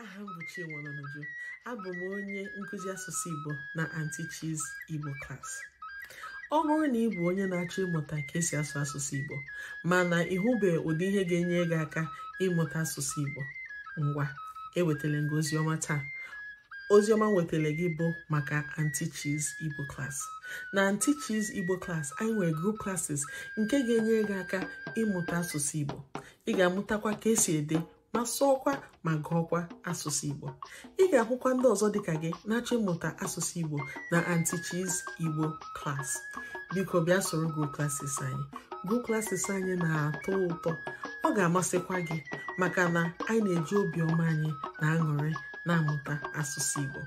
aha m bụ Chinwelonuju abụ m onye nkụzi asụsụ Igbo na anti Chi's Igbo klas ọ bụrụ na ị bụ onye na-achọ ịmụta ka esi asụ asụsụ Igbo mana ịhụbe ụdị ihe ga-enye gị aka ịmụta asụsụ Igbo ngwa ewetara gị oziọma taa oziọma nwetara gị bụ maka anti Chi's Igbo klas na anti Chi's Igbo klas anyị nwere group classes nke ga-enye gị aka ịmụta asụsụ Igbo ị ga-amụtakwa ka esi ede ma sụọkwa ma gụọkwa asụsụ Igbo ị ga-ahụkwa ndị ọzọ dịka gị na-achọ ịmụta asụsụ Igbo na Antichi's Igbo class biko bịa soro group anyị group anyị na-atọ ụtọ ọ ga-amasịkwa gị maka na anyị na-eji obiọma anyị na aṅụrị na-amụta asụsụ Igbo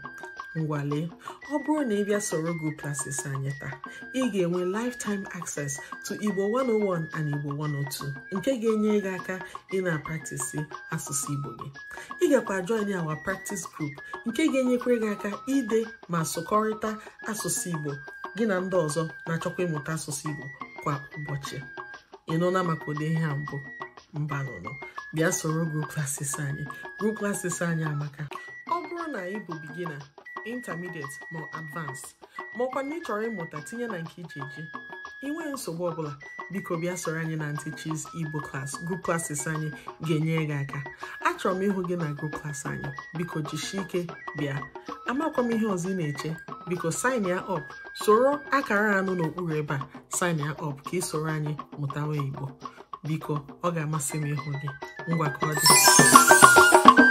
ngwale ọ bụrụ na ị bịa soro Go Places anyị taa ị ga-enwe lifetime access to Igbo 101 and Igbo 102 nke ga-enye gị aka ị na-apraktisi asụsụ Igbo gị ị gakwa anyị our practice group nke ga-enyekwa gị aka ide ma sụkọrịta asụsụ Igbo gị na ndị ọzọ na-achọkwa ịmụta asụsụ Igbo kwa ụbọchị ị nụla maka ụdị ihe a mbụ mba nụnụ bịa soro Go Places anyị Go Places anyị amaka ọ bụrụ na ị bụ bigina intermediate ma advanced maọkwa na ị chọrọ ịmụta tinye na nke iji eji inwe nsogbu ọbụla biko bịa soro anyị na Aunty Igbo klas group classes anyị ga-enyere gị aka achọrọ m ịhụ gị na group class anyị biko jisie ike bịa amakwa m ihe ọzọ ị na-eche biko sign ya up soro akara anụ n'okpuru ebe a sign ya up ka ị soro anyị mụtawa Igbo biko ọ ga-amasị m ịhụ gị ngwa dị